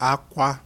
akwa